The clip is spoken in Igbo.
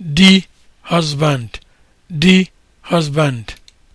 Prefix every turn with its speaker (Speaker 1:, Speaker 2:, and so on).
Speaker 1: the husband the husband